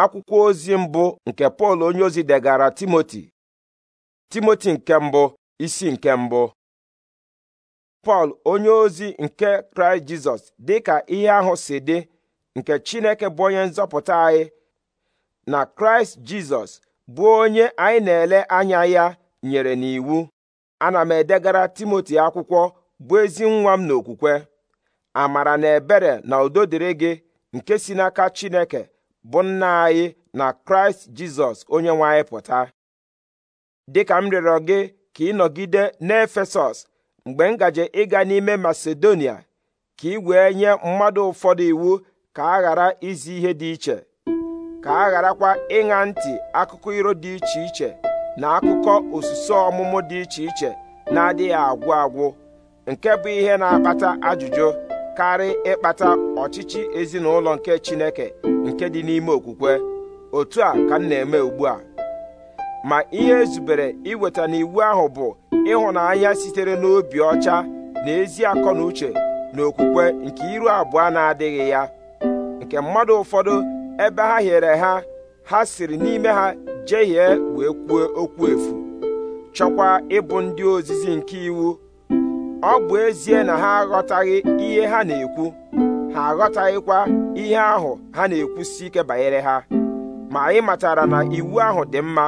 akwụkwọ ozi mbụ nke pọl onyeozi degara timoti timoti nke mbụ isi nke mbụ pọl onyeozi nke kraịst jizọs ka ihe ahụ si dị nke chineke bụ onye nzọpụta anyị na kraịst jizọs bụ onye anyị na-ele anya ya nyere n'iwu ana m edegara timoti akwụkwọ bụ ezi nwa m n'okwukwe amara na ebere na udo gị nke si n'aka chineke bụ nna anyị na kraịst jizọs onye nwe anyị pụta dịka m rịọrọ gị ka ị nọgide n'efesọs mgbe m ịga n'ime masedonia ka ị wee nye mmadụ ụfọdụ iwu ka a ghara izi ihe dị iche ka a gharakwa ịṅa ntị akụkọ iro dị iche iche na akụkọ osusu ọmụmụ dị iche iche na-adịghị agwụ agwụ nke bụ ihe na-akpata ajụjụ karị ịkpata ọchịchị ezinụlọ nke Chineke nke dị n'ime okwukwe otu a ka m na-eme ugbu a ma ihe ezubere iweta n'iwu ahụ bụ ịhụnanya sitere n'obi ọcha na ezi akọ na uche na okwukwe nke iru abụọ na-adịghị ya nke mmadụ ụfọdụ ebe ha hiere ha ha siri n'ime ha jehie wee kwuo okwu efu chọkwa ịbụ ndị ozizi nke iwu ọ bụ ezie na ha aghọtaghị ihe ha na-ekwu ha aghọtaghịkwa ihe ahụ ha na-ekwusi ike banyere ha ma anyị matara na iwu ahụ dị mma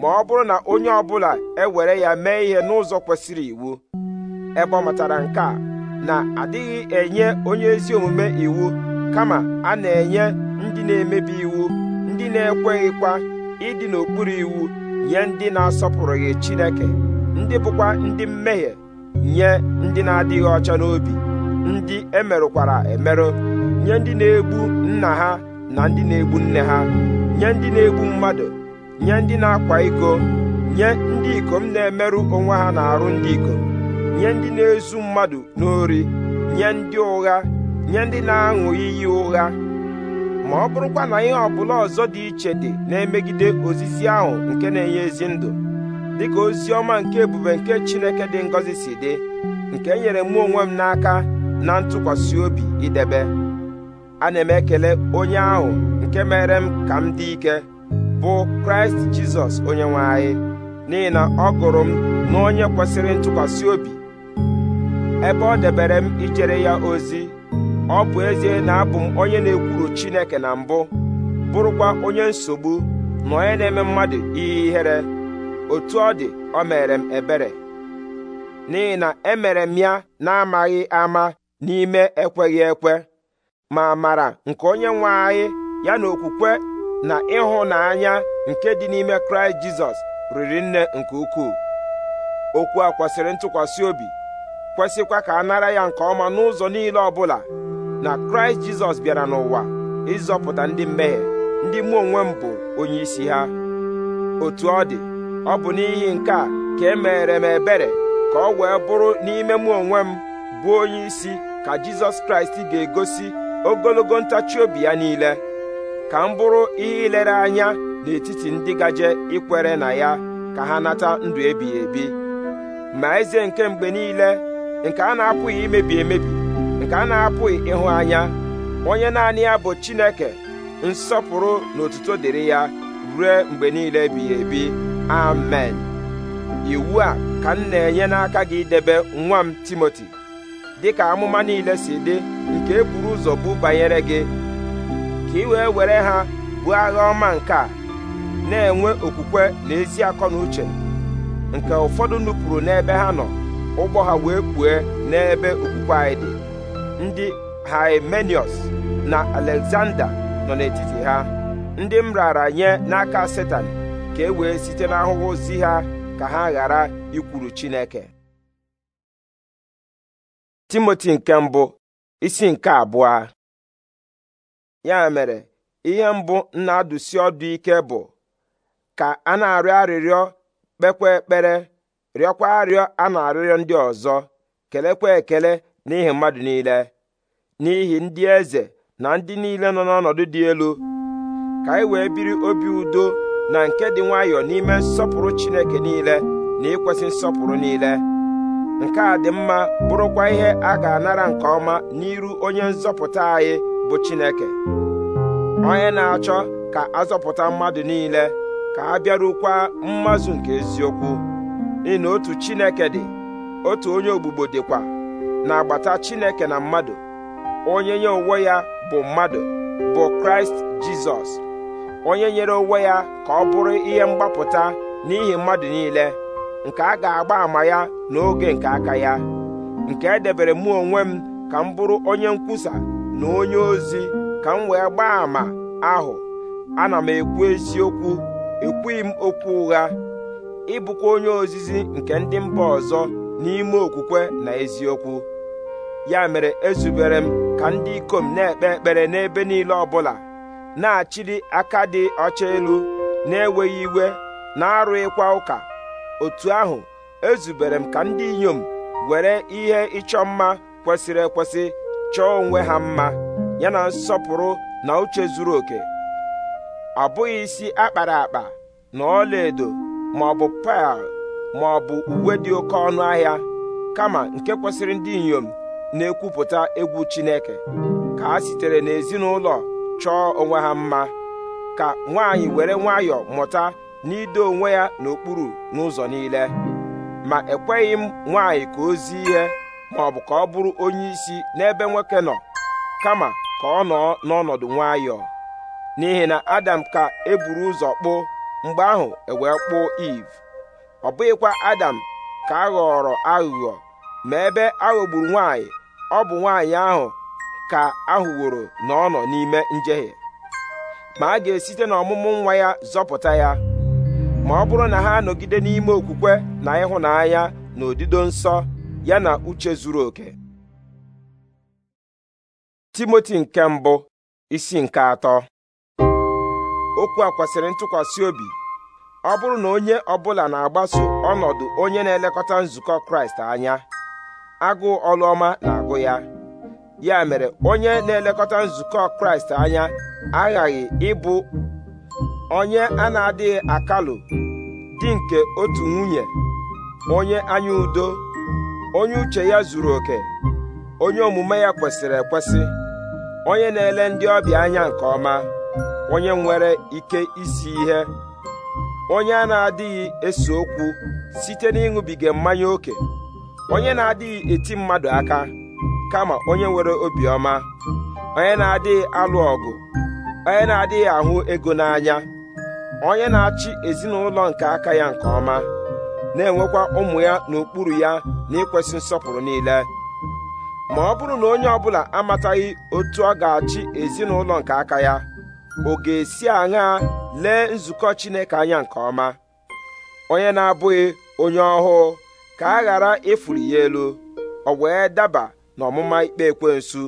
ma ọ bụrụ na onye ọbụla ewere ya mee ihe n'ụzọ kwesịrị iwu ebe nke a na adịghị enye onye ezi omume iwu kama a na-enye ndị na-emebi iwu ndị na-ekweghịkwa ịdị n'okpuru iwu nye ndị na-asọpụrụghị Chineke ndị bụkwa ndị mmehie nye ndị na-adịghị ọcha n'obi ndị emerụkwara emerụ nye ndị na-egbu nna ha na ndị na-egbu nne ha nye ndị na-egbu mmadụ nye ndị na-akwa iko nye ndị ikom na-emerụ onwe ha na-arụ ndị ikom nye ndị na-ezu mmadụ n'ori nye ndị ụgha nye ndị na-aṅụ iyi ụgha ma ọ bụrụkwa na ihe ọbụla ọzọ dị iche dị na-emegide ozizi ahụ nke na-enye ezi ndụ dịka ozi ọma nke ebube nke Chineke dị ngọzi si dị nke enyere mụ onwe m n'aka na ntụkwasị obi idebe ana m ekele onye ahụ nke mere m ka m dị ike bụ Kraịst Jizọs onye anyị n'ihi na ọ gụrụ m na onye kwesịrị ntụkwasị obi ebe ọ debere m ijere ya ozi ọ bụ ezie na abụ m onye na-ekwuru Chineke na mbụ bụrụkwa onye nsogbu na onye na-eme mmadụ ihe ihere otu ọ dị ọ mere m ebere n'ihi na emere m ya na-amaghị ama n'ime ekweghị ekwe ma mara nke onye nwe anyị ya na okwukwe na ịhụnanya nke dị n'ime kraịst jizọs riri nne nke ukwuu okwu a kwesịrị ntụkwasị obi kwesịkwa ka a nara ya nke ọma n'ụzọ niile ọbụla na kraịst jizọs bịara n'ụwa ịzọpụta ndị mmehie ndị mụ onwe m bụ onye isi ha otu ọ dị ọ bụ n'ihi nke a ka e mere m ebere ka ọ wee bụrụ n'ime mụ onwe m bụ onye isi ka Jizọs Kraịst ga-egosi ogologo ntachi obi ya niile ka m bụrụ ihe ilere anya n'etiti ndị gaje ikwere na ya ka ha nata ndụ ebighị ebi ma eze nke mgbe niile nke a na-apụghị imebi emebi nke a na-apụghị ịhụ anya onye naanị ya bụ Chineke nsọpụrụ na otuto dịrị ya ruo mgbe niile ebighị ebi amen iwu a ka m na-enye n'aka gị debe nwa m timoti dịka amụma niile si dị nke e ụzọ bụ banyere gị ka ị wee were ha bụ agha ọma nke a na-enwe okwukwe na ezi akọ na uche nke ụfọdụ nupụrụ n'ebe ha nọ ụgbọ ha wee pụọ n'ebe okwukwe anyị dị ndị haimenius na alexander nọ n'etiti ha ndị m nye n'aka setan ka e wee site n'ahụhụ si ha ka ha ghara ikwuru Chineke Timoti nke mbụ isi nke abụọ ya mere ihe mbụ na-adụsi ọdụ ike bụ ka a na-arịọ arịrịọ kpekwa ekpere rịọkwa arịọ a na-arịrịọ ndị ọzọ kelekwa ekele n'ihi mmadụ niile n'ihi ndị eze na ndị niile nọ n'ọnọdụ dị elu ka anyị wee biri obi udo na nke dị nwayọọ n'ime nsọpụrụ Chineke niile na ikwesị nsọpụrụ niile nke a dị mma bụrụkwa ihe a ga-anara nke ọma n'iru onye nzọpụta anyị bụ Chineke onye na-achọ ka azọpụta mmadụ niile ka a bịarukwa mmazụ nke eziokwu n'ihi na otu Chineke dị otu onye ogbugbo dịkwa na-agbata Chineke na mmadụ onye nye onwe ya bụ mmadụ bụ Kraịst Jizọs onye nyere onwe ya ka ọ bụrụ ihe mgbapụta n'ihi mmadụ niile nke a ga-agba àmà ya n'oge nke aka ya nke edebere mụ onwe m ka m bụrụ onye nkwusa na onye ozi ka m wee gbaa àmà ahụ ana m ekwu eziokwu ekwughị m okwu ụgha ịbụkwa onye ozizi nke ndị mba ọzọ n'ime okwukwe na eziokwu ya mere ezubere m ka ndị ikom na-ekpe ekpere n'ebe niile ọbụla na achịrị aka dị ọcha elu na-enweghị iwe na-arụghịkwa ụka otu ahụ ezubere m ka ndị inyom were ihe ịchọ mma kwesịrị ekwesị chọọ onwe ha mma yana nsọpụrụ na uche zuru oke ọ bụghị isi akpara akpa na ọlaedo ma ọ bụ pearl ma ọ bụ uwe dị oke ọnụ ahịa kama nke kwesịrị ndị inyom na-ekwupụta egwu Chineke ka ha sitere n'ezinụlọ chọọ onwe ha mma ka nwaanyị were nwayọọ mụta n'ido onwe ya n'okpuru n'ụzọ niile ma ekweghị m nwaanyị ka o zi ihe ma ọ bụ ka ọ bụrụ onye isi n'ebe nwoke nọ kama ka ọ nọọ n'ọnọdụ nwayọọ n'ihi na Adam ka eburu ụzọ kpụọ mgbe ahụ ewee kpụọ Eve ọ bụghịkwa Adam ka a ghọrọ aghụghọ ma ebe aghọgburu nwaanyị ọ bụ nwaanyị ahụ ka ahụworo na ọ nọ n'ime njehie ma a ga-esite n'ọmụmụ nwa ya zọpụta ya ma ọ bụrụ na ha anọgide n'ime okwukwe na ịhụnanya na odido nsọ ya na uche zuru oke timoti nke mbụ isi nke atọ okwu a kwesịrị ntụkwasị obi ọ bụrụ na onye ọbụla na-agbaso ọnọdụ onye na-elekọta nzukọ kraịst anya agụụ ọlụọma na-agụ ya ya mere onye na-elekọta nzukọ kraịst anya aghaghị ịbụ onye a na-adịghị akalụ di nke otu nwunye onye anya udo onye uche ya zuru oke onye omume ya kwesịrị ekwesị onye na-ele ndị ọbịa anya nke ọma onye nwere ike isi ihe onye a na-adịghị ese okwu site n'ịṅụbiga mmanya ókè onye na-adịghị eti mmadụ aka kama onye nwere obiọma onye na-adịghị alụ ọgụ onye na-adịghị ahụ ego n'anya onye na-achị ezinụlọ nke aka ya nke ọma na-enwekwa ụmụ ya n'okpuru ya na ịkwesị nsọpụrụ niile ma ọ bụrụ na onye ọbụla amataghị otu ọ ga-achị ezinụlọ nke aka ya ọ ga-esi aṅaa lee nzukọ Chineke anya nke ọma onye na-abụghị onye ọhụụ ka a ghara ịfụrụ ya elu ọ wee daba na ọmụma ikpe ekwensu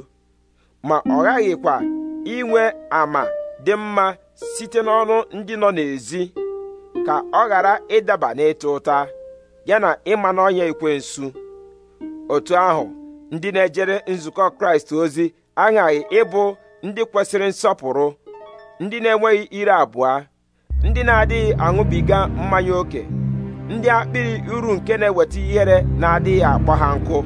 ma ọ ghaghịkwa inwe ama dị mma site n'ọnụ ndị nọ n'ezi ka ọ ghara ịdaba n'ịta ụta ya na ịma n'ọnya ekwensu otu ahụ ndị na-ejere nzukọ kraịst ozi aghaghị ịbụ ndị kwesịrị nsọpụrụ ndị na-enweghị ire abụọ ndị na-adịghị aṅụbiga mmanya ókè ndị akpịrị uru nke na-eweta ihere na-adịghị akpọ ha nkụ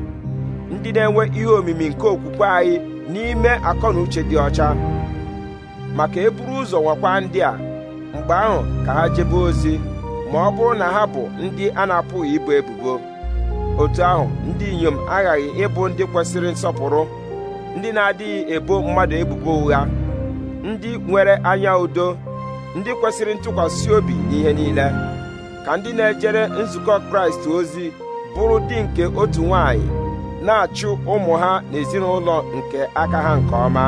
ndị na-enwe ihe omimi nke okwukwe anyị n'ime akọ na uche dị ọcha maka eburu ụzọ nwakwa ndị a mgbe ahụ ka ha jebe ozi ma ọ bụrụ na ha bụ ndị a na-apụghị ibu ebubo otu ahụ ndị inyom aghaghị ịbụ ndị kwesịrị nsọpụrụ ndị na-adịghị ebo mmadụ ebubo ụgha ndị nwere anya udo ndị kwesịrị ntụkwasị obi n'ihe niile ka ndị na-ejere nzukọ Kraịst ozi bụrụ di nke otu nwanyị na-achụ ụmụ ha na ezinụlọ nke aka ha nke ọma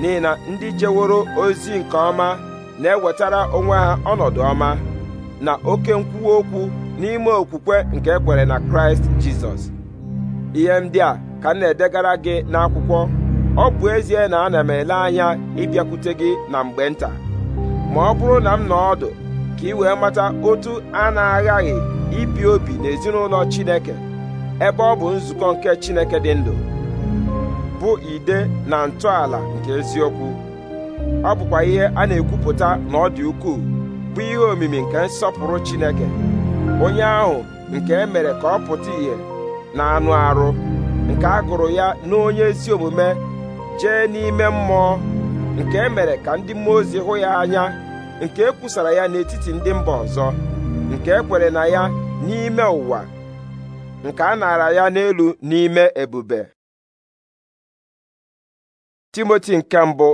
n'ihi na ndị jeworo ozi nke ọma na-ewetara onwe ha ọnọdụ ọma na oke nkwuwa okwu n'ime okwukwe nke ekwere na kraịst jizọs ihe ndị a ka m na-edegara gị n'akwụkwọ ọ bụ ezie na ana m ele anya ịbịakwute gị na mgbe nta ma ọ bụrụ na m nọ ọdụ ka ị wee mata otu a na-aghaghị ibi obi n'ezinụlọ chineke ebe ọ bụ nzukọ nke Chineke dị ndụ bụ ide na ntọala nke eziokwu ọ bụkwa ihe a na-ekwupụta na ọ dị ukwuu bụ ihe omimi nke nsọpụrụ Chineke onye ahụ nke e mere ka ọ pụta ìhè na anụ arụ nke a gụrụ ya n'onye ezi omume jee n'ime mmụọ nke e mere ka ndị mmụọ ozi hụ ya anya nke e kwusara ya n'etiti ndị mba ọzọ nke e kwere na ya n'ime ụwa nke a nara ya n'elu n'ime ebube timoti nke mbụ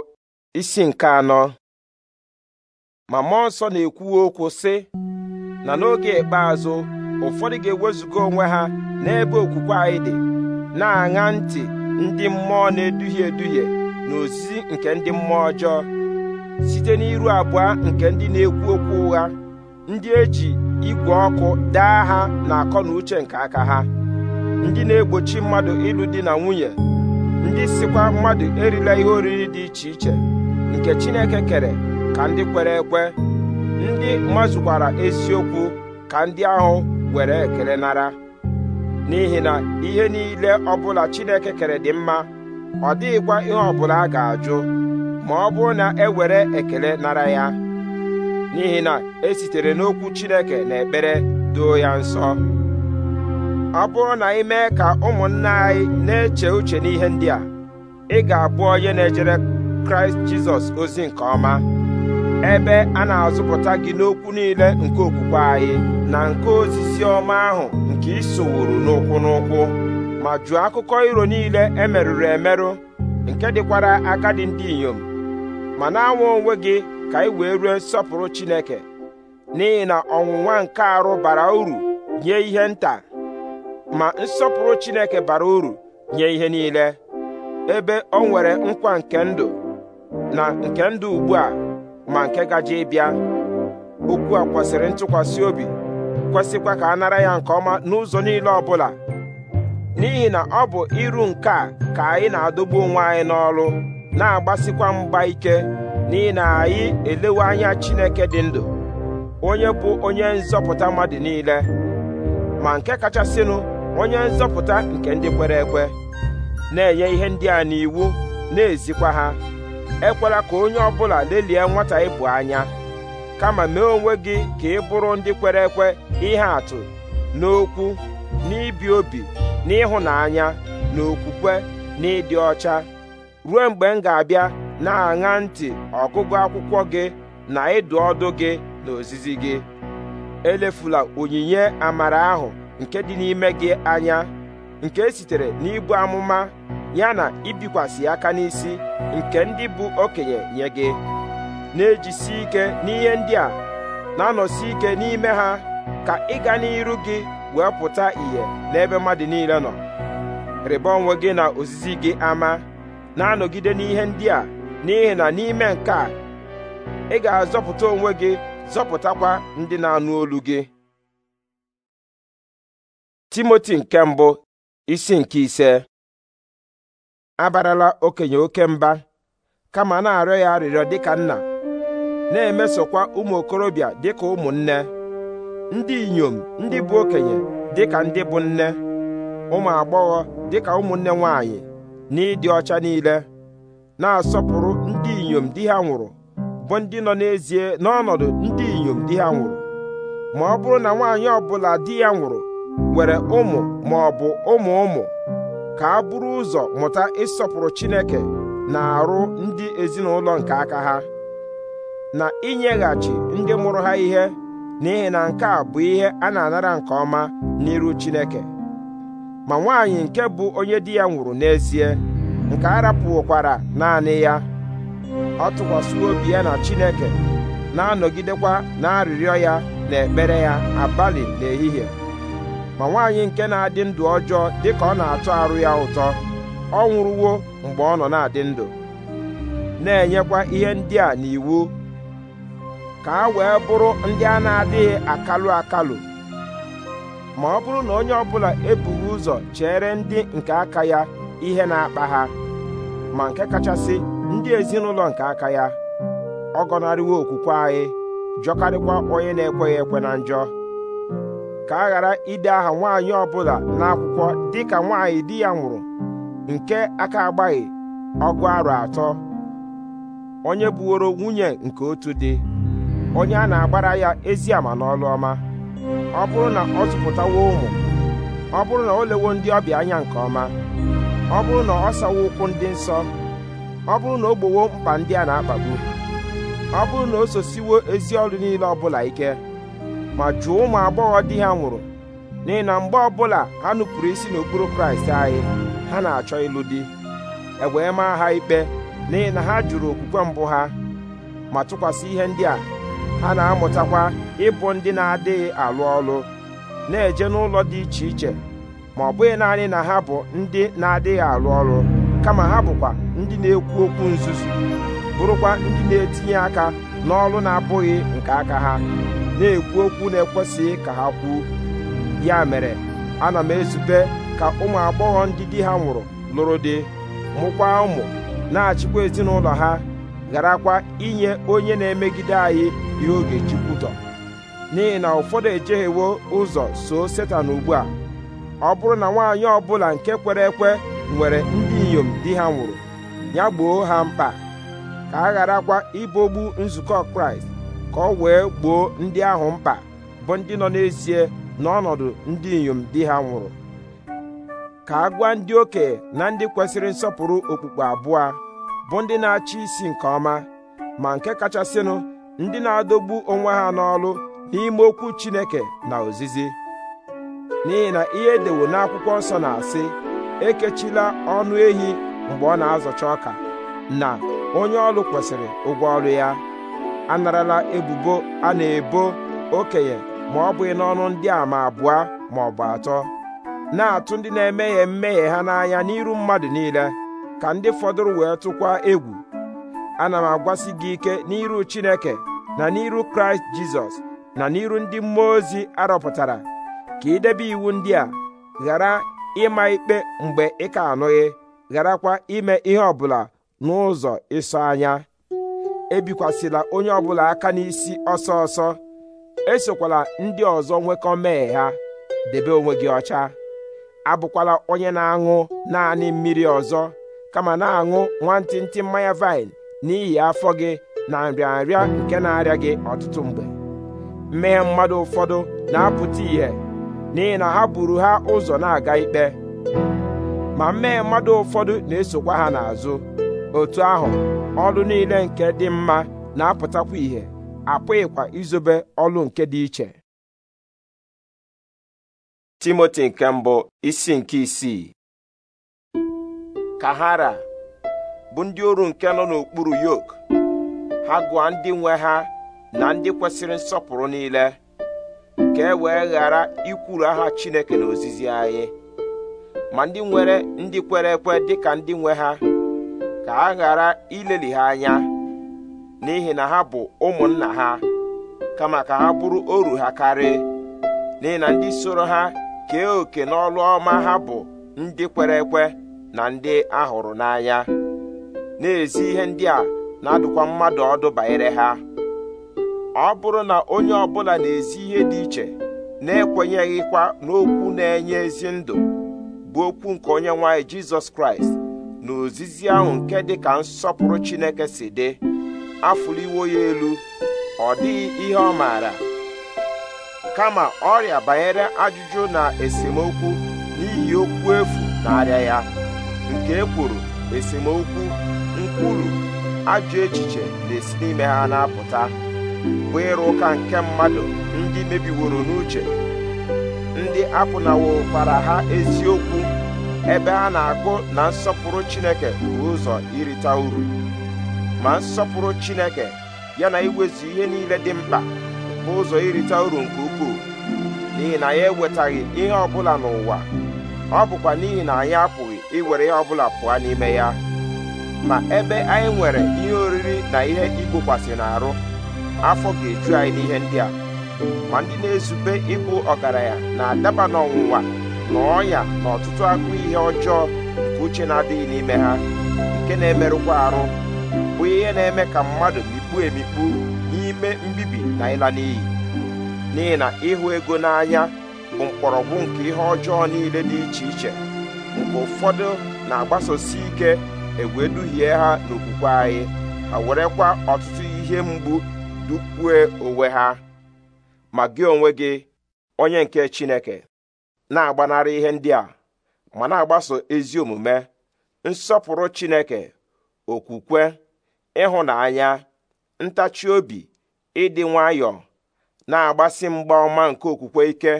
isi nke anọ ma mmụọ na-ekwu okwu sị na n'oge ikpeazụ ụfọdụ ga-ewezuga onwe ha n'ebe okwukwe anyị dị na-aṅa ntị ndị mmụọ na-eduhie eduhie na ozizi nke ndị mmụọ ọjọọ site n'iru abụọ nke ndị na-ekwu okwu ụgha ndị eji igwe ọkụ daa ha na akọ na uche nke aka ha ndị na-egbochi mmadụ ịlụ di na nwunye ndị sikwa mmadụ erila ihe oriri dị iche iche nke Chineke kere ka ndị kwere ekwe ndị mazụkwara eziokwu ka ndị ahụ were ekele nara n'ihi na ihe niile ọbụla Chineke kere dị mma ọ dịghịkwa ihe ọbụla a ga-ajụ ma ọ bụrụ na e were ekele nara ya n'ihi na e sitere n'okwu Chineke na ekpere doo ya nsọ ọ bụrụ na ị mee ka ụmụnna anyị na-eche uche n'ihe ndị a ị ga-abụ onye na-ejere Kraịst Jizọs ozi nke ọma ebe a na-azụpụta gị n'okwu niile nke okwukwe anyị na nke ozizi ọma ahụ nke isowuru n'ụkwụ n'ụkwụ ma jụọ akụkọ iro niile emerụrụ emerụ nke dịkwara agadi ndị inyom ma na-anwa onwe gị ka anyị wee ruo nsọpụrụ Chineke n'ihi na ọnwụnwa nke arụ bara uru nye ihe nta ma nsọpụrụ Chineke bara uru nye ihe niile ebe ọ nwere nkwa nke ndụ na nke ndụ ugbu a ma nke gaje ịbịa okwu a kwesịrị ntụkwasị obi kwesịkwa ka a nara ya nke ọma n'ụzọ niile ọbụla n'ihi na ọ bụ iru nke a ka anyị na-adọgbu onwe anyị n'ọrụ na-agbasikwa mgba ike n'ihi na anyị elewe anya chineke dị ndụ onye bụ onye nzọpụta mmadụ niile ma nke kachasịnụ onye nzọpụta nke ndị kwere ekwe na-enye ihe ndị a n'iwu na-ezikwa ha ekwela ka onye ọ bụla lelie nwata ịbụ anya kama mee onwe gị ka ị bụrụ ndị kwere ekwe ihe atụ n'okwu n'ibi obi n'ịhụnanya na okwukwe ọcha ruo mgbe m ga-abịa na-aṅa ntị ọgụgụ akwụkwọ gị na ịdụ ọdụ gị na ozizi gị elefula onyinye amara ahụ nke dị n'ime gị anya nke esitere n'ibu amụma ya na ibikwasị aka n'isi nke ndị bụ okenye nye gị na-ejisi ike n'ihe ndị a na-anọsi ike n'ime ha ka ịga n'iru gị wee pụta ìhè n'ebe mmadụ niile nọ rịba onwe gị na ozizi gị ama na-anọgide n'ihe ndị a n'ihi na n'ime nke a ị ga-azọpụta onwe gị zọpụtakwa ndị na-anụ olu gị Timoti nke mbụ isi nke ise abarala okenye oke mba kama na-arịọ ya arịrịọ dịka nna na-emesokwa ụmụ okorobịa dịka ụmụnne ndị inyom ndị bụ okenye dịka ndị bụ nne ụmụ agbọghọ dịka ụmụnne nwanyị na-ịdị ọcha niile na-asọpụrụ ndị inyom di ha nwụrụ bụ ndị nọ n'ezie n'ọnọdụ ndị inyom di ha nwụrụ ma ọ bụrụ na nwaanyị ọbụla di ya nwụrụ nwere ụmụ ma ọ bụ ụmụ ụmụ ka a bụrụ ụzọ mụta ịsọpụrụ Chineke na-arụ ndị ezinụlọ nke aka ha na inyeghachi ndị mụrụ ha ihe n'ihi na nke a bụ ihe a na-anara nke ọma n'iru Chineke ma nwaanyị nke bụ onye di ya nwụrụ n'ezie nke a rapụkwara naanị ya ọ tụkwasịwo obi ya na Chineke na-anọgidekwa na arịrịọ ya na ekpere ya abalị n'ehihie, ma nwaanyị nke na-adị ndụ ọjọọ dịka ọ na-atọ arụ ya ụtọ ọ nwụrụwo mgbe ọ nọ na-adị ndụ na-enyekwa ihe ndị a n'iwu ka a wee bụrụ ndị a na-adịghị akalụ akalụ ma ọ bụrụ na onye ọbụla ebughị ụzọ chere ndị nke aka ya ihe na-akpa ha ma nke kachasị ndị ezinụlọ nke aka ya ọ gọnarịwo okwukwe anyị jọkarịkwa onye na-ekweghị ekwe na njọ ka a ghara ide aha nwaanyị bụla n'akwụkwọ dịka nwaanyị di ya nwụrụ nke aka agbaghị ọgụ arọ atọ onye buworo nwunye nke otu dị onye a na-agbara ya ezi ama n'ọlụ ọma ọ bụrụ na ọ zụpụtawo ụmụ ọ bụrụ na o lewo ndị ọbịa anya nke ọma ọ bụrụ na ọ sawa ụkwụ ndị nsọ ọ bụrụ na o gbowo mkpa ndị a na-akpagbu ọ bụrụ na o sosiwo ezi ọrụ niile ọbụla ike ma jụọ ụmụ agbọghọ di ha nwụrụ n'ihi na mgbe ọbụla ha nupụrụ isi n'okpuru kraịst anyị ha na-achọ ịlụ di e maa ha ikpe n'ihi na ha jụrụ okwukwe mbụ ha ma tụkwasị ihe ndị a ha na-amụtakwa ịbụ ndị na-adịghị alụ ọlụ na-eje n'ụlọ dị iche iche ma ọ bụghị naanị na ha bụ ndị na-adịghị arụ ọrụ kama ha bụkwa ndị na-ekwu okwu nzuzu bụrụkwa ndị na-etinye aka n'ọrụ na-abụghị nke aka ha na-ekwu okwu na-ekwesịghị ka ha kwuo ya mere ana m ezube ka ụmụ agbọghọ ndị di ha nwụrụ lụrụ di mụkwa ụmụ na-achịkwa ezinụlọ ha gharakwa inye onye na-emegide anyị ihe oge Chukwu tọ n'ihi na ụfọdụ ejeghịwo ụzọ so Setan ugbu a ọ bụrụ na nwaanyị ọbụla nke kwere ekwe nwere ndị inyom di ha nwụrụ ya gboo ha mkpa ka a gharakwa ibogbu nzukọ kraịst ka ọ wee gboo ndị ahụ mkpa bụ ndị nọ n'ezie n'ọnọdụ ndị inyom di ha nwụrụ ka a gwa ndị okenye na ndị kwesịrị nsọpụrụ okpukpe abụọ bụ ndị na-achị isi nke ọma ma nke kachasịnụ ndị na-adọgbu onwe ha n'ọlụ n'ime okwu Chineke na ozizi n'ihi na ihe edewo n'akwụkwọ nsọ na-asị ekechila ọnụ ehi mgbe ọ na-azọcha ọka na onye ọrụ kwesịrị ụgwọ ọrụ ya anarala ebubo a na-ebo okenye ma ọ bụghị n'ọnụ ndị a ma abụọ ma ọ bụ atọ na-atụ ndị na-emeghe mmehie ha n'anya n'iru mmadụ niile ka ndị fọdụrụ wee tụkwa egwu ana m agwasị gị ike n'iru Chineke na n'iru Kraịst Jizọs na n'iru ndị mmụọ ozi arọpụtara ka idebe iwu ndị a ghara ịma ikpe mgbe ị ka anụghị gharakwa ime ihe ọbụla n'ụzọ ịsọ anya ebikwasịla onye ọbụla aka n'isi ọsọ ọsọ esokwala ndị ọzọ nwekọ mee ha debe onwe gị ọcha abụkwala onye na-aṅụ naanị mmiri ọzọ kama na-aṅụ nwantịntị mmanya vaịn n'ihi afọ gị na nrịanrịa nke na-arịa gị ọtụtụ mgbe mmehie mmadụ ụfọdụ na-apụta ìhè n'ihi na ha buru ha ụzọ na-aga ikpe ma mmee mmadụ ụfọdụ na-esokwa ha n'azụ otu ahụ ọrụ niile nke dị mma na-apụtakwa ìhè ịkwa izobe ọlụ nke dị iche Timoti nke mbụ isi nke isii kahara bụ ndị oru nke nọ n'okpuru yok ha gụọ ndị nwe ha na ndị kwesịrị nsọpụrụ niile ka e wee ghara ikwuru aha Chineke na ozizi anyị ma ndị nwere ndị kwere ekwe dịka ndị nwe ha ka a ghara ileli ha anya n'ihi na ha bụ ụmụnna ha kama ka ha bụrụ oru ha karị. n'ihi na ndị soro ha kee oke n'ọlụ ọma ha bụ ndị kwere ekwe na ndị ahụrụ n'anya na-ezi ihe ndị a na-adụkwa mmadụ ọdụ banyere ha ọ bụrụ na onye ọbụla na-ezi ihe dị iche na-ekwenyeghịkwa n'okwu na-enye ezi ndụ bụ okwu nke onye nwanyị jizọs kraịst na ozizi ahụ nke dị ka nsọpụrụ chineke si dị iwo ya elu ọ dịghị ihe ọ maara kama ọrịa banyere ajụjụ na esemokwu n'ihi okwu efu na-arịa ya nke ekworo esemokwu nkwulu ajụ echiche na-esi n'ime ha na-apụta bụ ịrụ ụka nke mmadụ ndị mebiworo n'uche ndị apụnawokwara ha eziokwu ebe a na-agụ na nsọpụrụ Chineke bụ ụzọ irita uru ma nsọpụrụ Chineke ya na iwezu ihe niile dị mkpa bụ ụzọ irita uru nke ukwuu n'ihi na ya ewetaghị ihe ọbụla n'ụwa ọ bụkwa n'ihi na anyị apụghị iwere ihe ọbụla pụọ n'ime ya ma ebe anyị nwere ihe oriri na ihe igbokwasị n'arụ afọ ga-eju anyị n'ihe ndị a ma ndị na-ezube ịbụ ọgaranya na-adaba n'ọnwụnwa na ọnya na ọtụtụ agụ ihe ọjọọ nke uche na-adịghị n'ime ha nke na-emerụkwa arụ bụ ihe na-eme ka mmadụ mikpu emikpu n'ime mbibi na ịla n'iyi n'ihi na ịhụ ego n'anya bụ mkpọrọgwụ nke ihe ọjọọ niile dị iche iche mgbe ụfọdụ na-agbasosi ike egwe duhie ha n'okwukwe anyị ha werekwa ọtụtụ ihe mgbu dukwue onwe ha ma gị onwe gị onye nke Chineke na-agbanarị ihe ndị a ma na-agbaso ezi omume nsọpụrụ Chineke okwukwe ịhụnanya ntachi obi ịdị nwayọọ na-agbasi mgba ọma nke okwukwe ike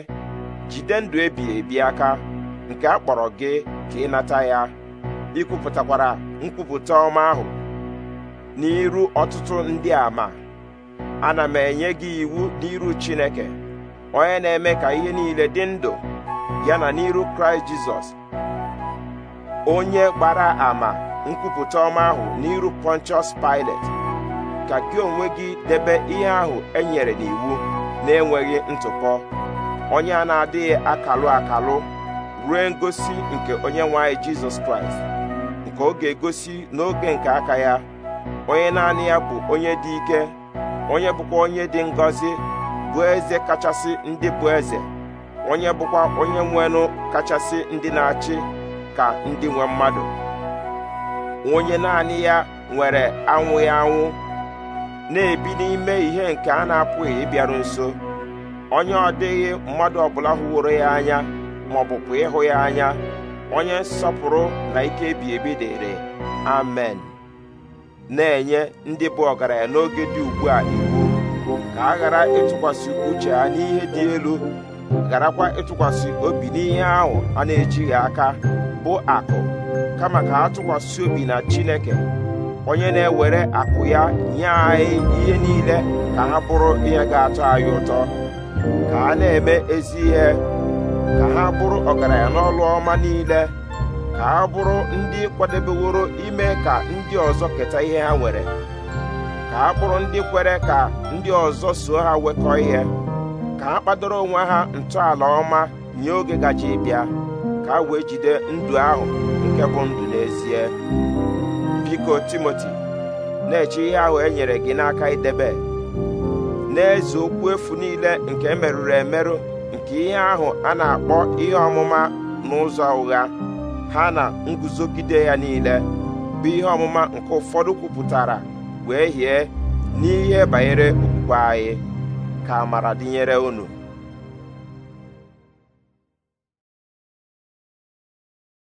jide ndụ ebi ebi aka nke a kpọrọ gị ka ịnata ya ikwupụtakwara nkwupụta ọma ahụ n'iru ọtụtụ ndị ama ana m enye gị iwu n'iru Chineke onye na-eme ka ihe niile dị ndụ ya na n'iru Kraịst Jizọs onye gbara ama nkwupụta ọma ahụ n'iru Pontius Pilate ka gị onwe gị debe ihe ahụ e nyere n'iwu na-enweghị ntụpọ onye a na-adịghị akalụ akalụ ruo ngosi nke onye nwanyị Jizọs Kraịst nke ọ ga-egosi n'oge nke aka ya onye naanị ya bụ onye dị ike onye bụkwa onye dị ngọzi bụ eze kachasị ndị bụ eze onye bụkwa onye nwenụ kachasị ndị na-achị ka ndị nwe mmadụ onye naanị ya nwere anwụ ya anwụ na-ebi n'ime ihe nke a na-apụghị ịbịaru nso onye ọ dịghị mmadụ ọbụla hụworo ya anya ma ọ ịhụ ya anya onye nsọpụrụ na ike ebi ebi dịrị amen na-enye ndị bụ ọgaranya n'oge dị ugbu a iwu ka a ghara ịtụkwasị uche ha n'ihe dị elu gharakwa ịtụkwasị obi n'ihe ahụ a na-ejighị aka bụ akụ kama ka ha tụkwasị obi na Chineke onye na-ewere akụ ya nye anyị ihe niile ka ha bụrụ ihe ga-atọ anyị ụtọ ka a na-eme ezi ihe ka ha bụrụ ọgaranya n'ọlụ ọma niile ka ha bụrụ ndị kwadebeworo ime ka ndị ọzọ keta ihe ha nwere ka ha bụrụ ndị kwere ka ndị ọzọ so ha wekọ ihe ka ha kpadoro onwe ha ntọala ọma nye oge gaji bịa ka ha wee jide ndụ ahụ nke bụ ndụ n'ezie biko Timoti na-eche ihe ahụ e nyere gị n'aka idebe n'eze okwu efu niile nke e merụrụ emerụ nke ihe ahụ a na-akpọ ihe ọmụma n'ụzọ ụgha ha na nguzogide ya niile bụ ihe ọmụma nke ụfọdụ kwupụtara wee hie n'ihe banyere okwukwe anyị ka amara dịnyere unu